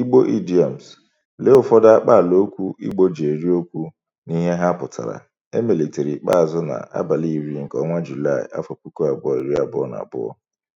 Igbo Idioms: Lee ụfọdụ okwu Igbo ji eri okwu n'ihe ihe ha pụtara e melitere ikpeazụ na abalị iri nke ọnwa Julaị, afọ puku abụọ abụọ iri na abụọ.